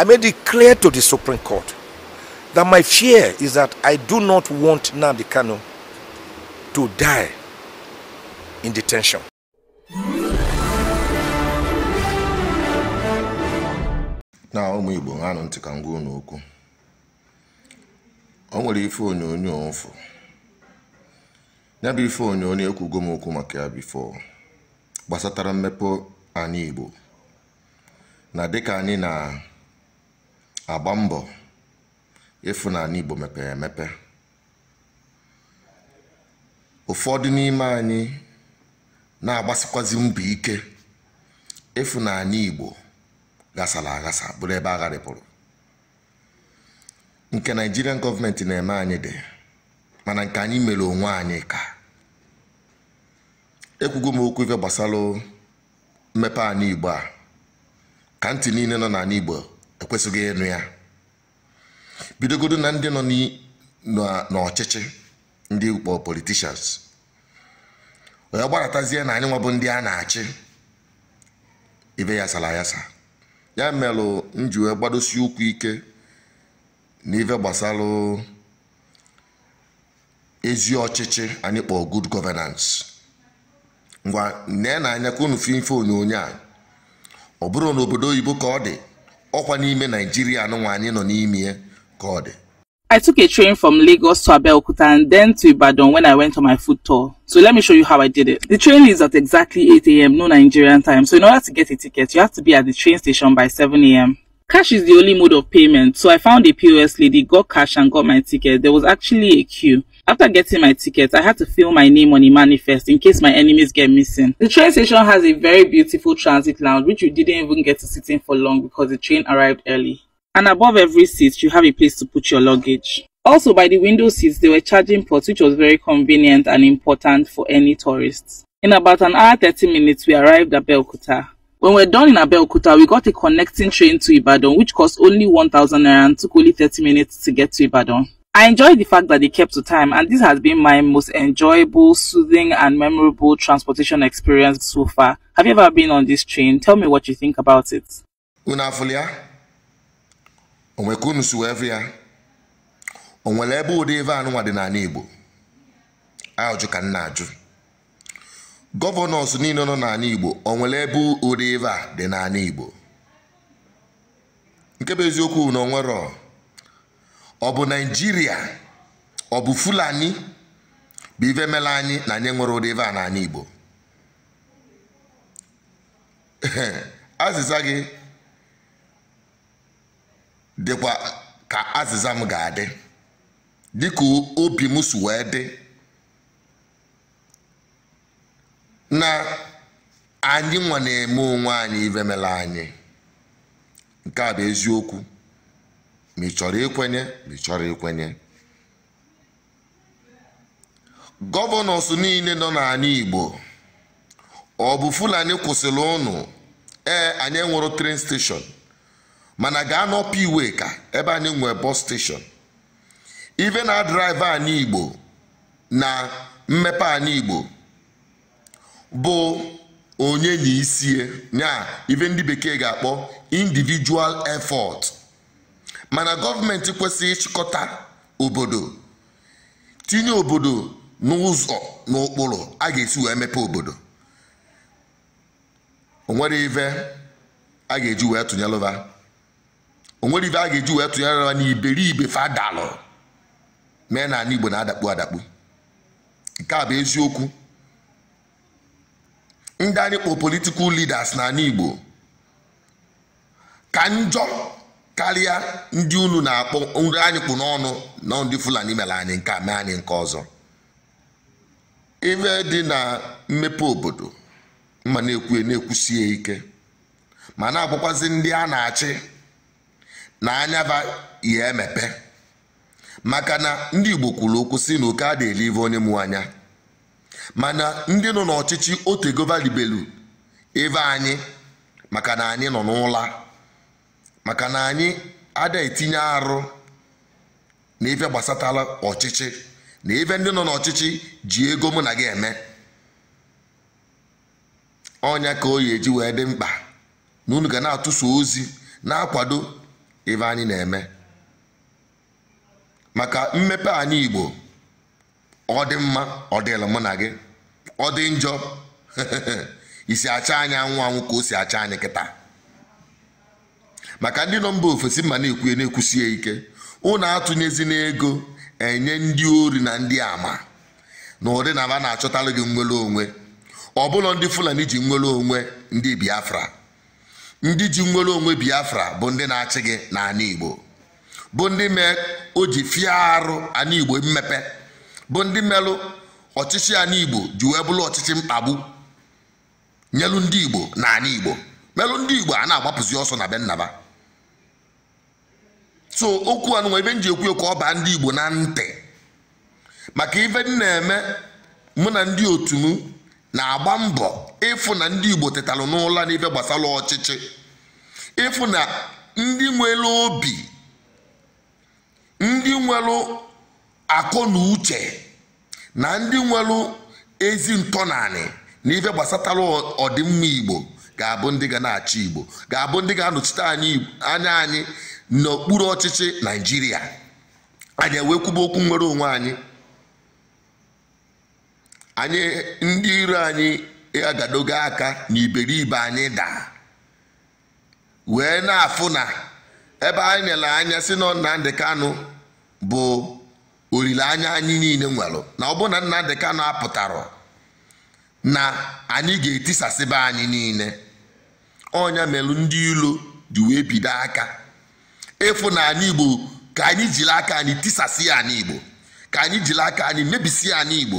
I made it clear to the Supreme Court that my fear is that I do not want Nnamdi Kanu to die in detention. na ụmụ Igbo nwanụ ntị ka m gwa okwu o nwere ife onyonyo mfụ ya ife onyonyo ekwugo m okwu maka ya bifo gbasatara mmepe anyị Igbo na dịka anyị na agba mbọ ịfụ na Igbo mepere emepe ụfọdụ n'ime anyị na-agbasikwazi mbọ ike ịfụ na ala Igbo ghasara aghasa bụrụ ebe agharịpụrụ nke naijirian gọọmenti na-eme anyị dị mana nke anyị mere onwe anyị ka ekwugo m okwu ife gbasara mmepe ala Igbo a ka ntị niile nọ n'ala Igbo ekwesịghị ịnụ ya bidogodo na ndị nọ n'ọchịchị ndị ukpo politishans onye gbaratazie na anyị nwa bụ ndị a na-achị ibe ya sara yasa ya melụ njiwe gbadosi ụkwụ ike n'ife gbasara ezi ọchịchị anyị kpọọ good governance ngwa nee na anya ka unu fi ife onyonyo a ọ bụrụ na obodo oyibo ka ọ dị ọkwa n'ime naijiria anụnwa anyị nọ n'ime ya ka ọ dị I took a train from Lagos to Abeokuta and then to Ibadan when I went on my food tour. So let me show you how I did it. The train leaves at exactly 8 a.m. no Nigerian time. So in order to get a ticket, you have to be at the train station by 7 a.m. Cash is the only mode of payment. So I found a POS lady, got cash and got my ticket. There was actually a queue. After getting my ticket, I had to fill my name on a manifest in case my enemies get missing. The train station has a very beautiful transit lounge which you didn't even get to sit in for long because the train arrived early. And above every seat, you have a place to put your luggage. Also, by the window seats, there were charging ports which was very convenient and important for any tourists. In about an hour 30 minutes, we arrived at Belkuta. When we are done in Belkuta, we got a connecting train to Ibadan which cost only 1000 naira and took only 30 minutes to get to Ibadan. I enjoyed the fact that they kept to time, and this has been my most enjoyable, soothing, and memorable transportation experience so far. Have you ever been on this train? Tell me what you think about it. Unafulia, onwekunu suwevia, onwele ebe ụdị ebe anụnwa dị n'ala Igbo. Ajụ ka nna ajụ. Gọvanọs niile nọ n'ala Igbo, onwele ebe ụdị ebe a dị Igbo. Nke bụ eziokwu na onwerọ ọ bụ naijiria ọ bụ fulani bụ ife mela anyị na anyị nwere ụdị ife a na anyị igbo azịza gị dịkwa ka azịza m ga-adị dịka obi m si wee dị na anyị nwa na-eme onwe anyị ife anyị nke a bụ eziokwu ma ị chọrọ ikwenye ma ị chọrọ ikwenye gọvanọs niile nọ n'ala Igbo ọ bụ Fulani kwụsịrị ụnụ ee anyị enwero tren steshọn mana gaa n'ọpa iwe ka ebe anyị nwee bọs steshọn ive na draiva anyị Igbo na mmepe anyị Igbo bụ onye na isie nya ive ndị bekee ga-akpọ individual effort mana gọọmenti kwesịrị ịchịkọta obodo tinye obodo n'ụzọ n'ụkpụrụ a ga-esi wee mepe obodo onwere ive a ga-eji wee tụnyelụva onwere ive a ga-eji wee tụnyelụva na iberibe fadalụ mee na ala igbo na-adakpu adakpu nke a bụ eziokwu ndị anyị kpọ politikal leaders na ala igbo ka njọ karịa ndị unu na-akpọ nri anyị kpụ n'ọnụ na ndị fulani mere anyị nke a mee anyị nke ọzọ ife dị na mmepe obodo mma na ekwue na-ekwusie ike ma na-abụkwazi ndị a na-achị na anyaba ihe emepe maka na ndị igbo kwuru okwu si na oke a na onye mụ anya mana ndị nọ n'ọchịchị otegova ribelu ebe anyị maka na anyị nọ n'ụla maka na anyị ada etinye arụ na ife gbasatala ọchịchị na ebe ndị nọ n'ọchịchị ji ego mụ na gị eme ọnya ka oyi eji wee dị mkpa na unu ga na-atụso ozi na-akwado ife anyị na-eme maka mmepe anyị igbo ọ dị mma ọ dịla mụ na gị ọ dị njọ isi acha anyị anwụ anwụ ka o si acha anyị kịta maka ndị nọ mba ofesi ma na-ekwuye na-ekwusie ike ụnụ atụnyezi n'ego enye ndị ori na ndị ama na ụdị na aba na-achọtalụ gị nwere onwe ọbụlọ ndị fulani ji nwere onwe ndị biafra ndị ji nwere onwe biafra bụ ndị na-achị gị na igbo bụ ndị mee o ji fie arụ ala igbo mmepe bụ ndị melụ ọchịchị ala igbo ji wee bụrụ ọchịchị mkpagbu nyelụ ndị igbo na ala igbo melụ ndị igbo a na-agbapụzi ọsọ na be nnaba so okwu anụnwa ebe m ji ekwu ka ọ baa ndị igbo na ntị maka ife m na-eme mụ na ndị otu m na-agba mbọ ịfụ na ndị igbo tetalụ n'ụla n'ife gbasara ọchịchị ịfụ na ndị nwere obi ndị nwere akọ na uche na ndị nwere ezi ntọnanị na ife gbasatara ọdịmma igbo ga-abụ ndị ga na-achị igbo ga-abụ ndị ga-anọchite anya anyị n'okpuru ọchịchị naijiria anyị ewee kwuba okwu nwere onwe anyị anyị ndị iro anyị agadogo aka iberibe anyị daa wee na-afụ na ebe anyị nyere anya si na nnamdị Kanu bụ olileanya anyị niile nwere na ọ bụ na Nnamdi Kanu apụtara na anyị ga-etisasịba anyị niile ọnya melụ ndị ilo ji wee bido aka ịfụnanya igbo ka anyị jiri aka anyị tisasị ya anyị igbo ka anyị jiri aka anyị mebisi ya anyị igbo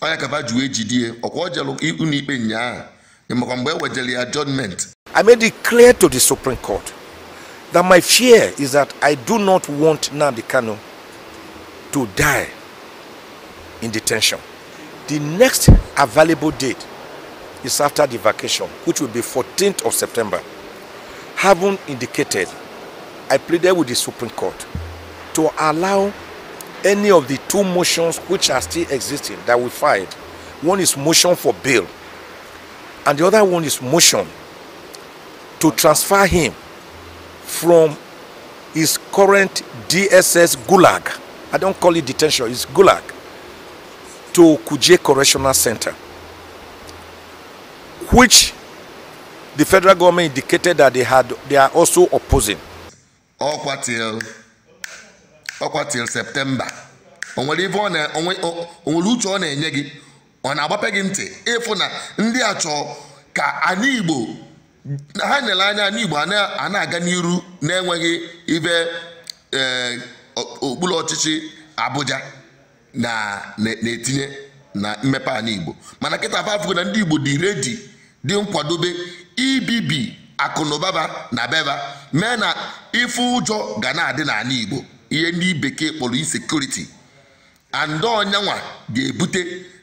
onye kaba juwe ejidie ọkwa ojelu ụlọikpe ụnyaahụ ịmakwa mgbe ewejere ya judgment I made it clear to the Supreme Court that my fear is that I do not want Nnamdi Kanu to die in detention. The next available date is after the vacation, which will be 14th of September. Having indicated I pleaded with the Supreme Court to allow any of the two motions which are still existing that we filed. One is motion for bail, and the other one is motion to transfer him from his current DSS gulag. I don't call it detention, it's gulag to Kuje Correctional Center, which the federal government indicated that they had they are also opposing. ọkwa til ọkwa til septemba onwere ọ na uche ọ na-enye gị ọ na-agbape gị ntị ịfụ na ndị a chọọ ka anyị Igbo ha nyere anya anyị Igbo a na-aga n'iru na-enweghị ibe e, okpuru ọchịchị Abuja na-etinye na mmepe ala Igbo mana kịta afọ afọ na ndị Igbo dị redi dị nkwadobe ibibi akụnụbaba na beba mee na ife ụjọ ga na-adị n'ala igbo ihe ndị bekee kpọrọ insekuriti andị ọnyanwa ga-ebute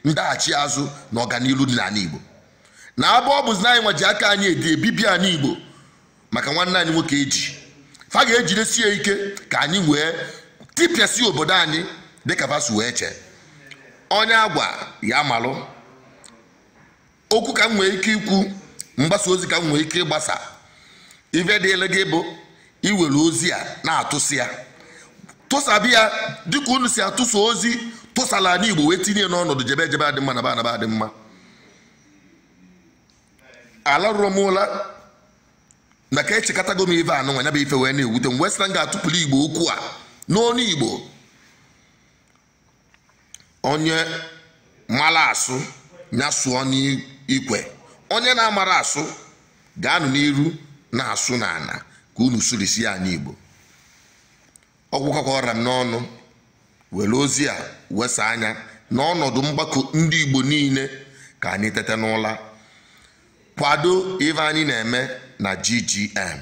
ndaghachi azụ na ọganihu dị n'ala igbo na abụ ọ bụzi anyị nwa ji aka anyị edi ebibi anyị igbo maka nwanne anyị nwoke eji fa ga-ejidesi ya ike ka anyị wee tipịasị obodo anyị dịka vasu wee chee onye agwa ya malụ okwu ka m nwee ike ikwu mgbasa ozi ka m nwee ike ịgbasa ife dịele gị bụ iwere ozi a na-atụsi ya tụsabi ya dịka unu si atụsa ozi tụsala ala igbo wee tinye n'ọnọdụ jebe jebe adị mma na ba anaba adị mma ala rụrụ m ụla na ka echekọtago m ife anụ nwa nyaba ife wee na-ewute m wee m ga-atụpụrụ igbo okwu a n'onu igbo onye mara asụ ya sụọ n'ikwe onye na-amara asụ ga-anụ n'iru na-asụ n'ana ka unu sụrisi anyị igbo ọgwụkọka m n'ọnụ were ozi a wesa anya na n'ọnọdụ mgbakọ ndị igbo niile ka anyị tete n'ụla kwado ife anyị na-eme na ggm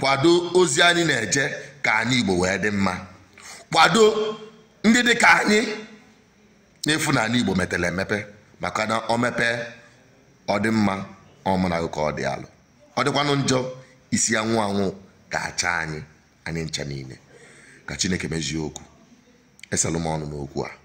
kwado ozi anyị na-eje ka anyị igbo wee dị mma kwado ndị dị ka anyị na-efu na igbo metere emepe maka na ọ mepee ọ dị mma ọmụragụ ka ọ dị alụ ọ dịkwanụ njọ isi anwụ anwụ ga-acha anyị anyị ncha niile ka Chineke mezie okwu esalụ m ọnụ n'okwu a